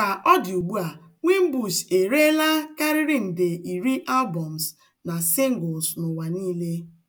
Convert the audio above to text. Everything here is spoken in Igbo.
Ka ọ dị ugbu a, Wimbush ereela karịrị nde iri albọms na singles n'ụwa niile.